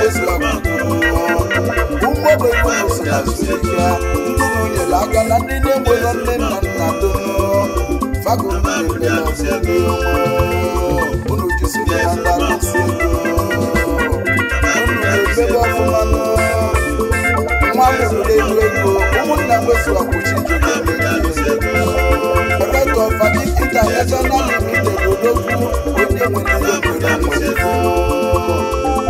ụmụogbenweụsịazụya ndụrụ nyere ndị na nne nna na ndị akụsi ego unu na ebebe ụmụnna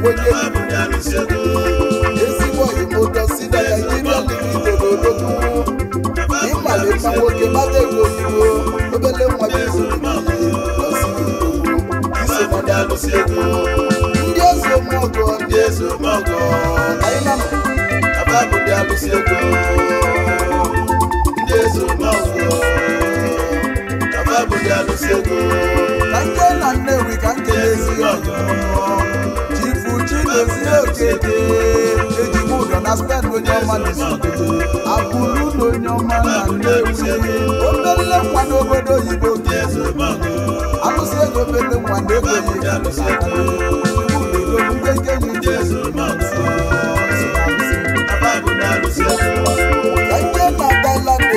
owó yé mi. èsì wọ̀nyí mo jọ sílẹ̀ nàìjíríà ní ìdòdò lógún. ìmàlè máa wọgé má lè wo ìwò lóbẹ́lẹ́ wọn bí ìdòdò yìí lọ sí ìdòdò. ìsèmọ̀dà ló ṣe kú. ndí èso mọ̀gọ́ ndí èso mọ̀gọ́. àyínàmù abábùdá ló ṣe kú. ndí èso mọ̀gọ́ abábùdá ló ṣe kú. kàńké nà nẹ́wì kàńké èsì ọ̀gọ́ tèmi òkèdè èjì mú dọ̀nà spẹ́ẹ̀d ló ní ọmọ ní sùkèdè àbúrú ló ní ọmọ náà léwu ó mẹ́rìnlẹ̀ pàdé òbòdó òyìnbó kìí àlùsí èjò pété pàdé òyìnbó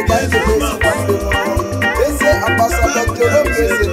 Thank you. Ese ambassador Jolo Kese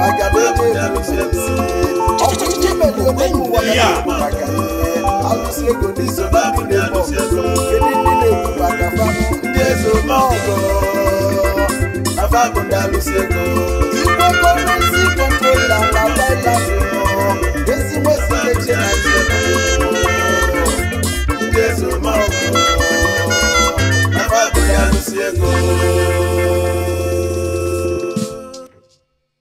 maka na ebe ebiri ezi ọkụ iji mere ome na ndị eze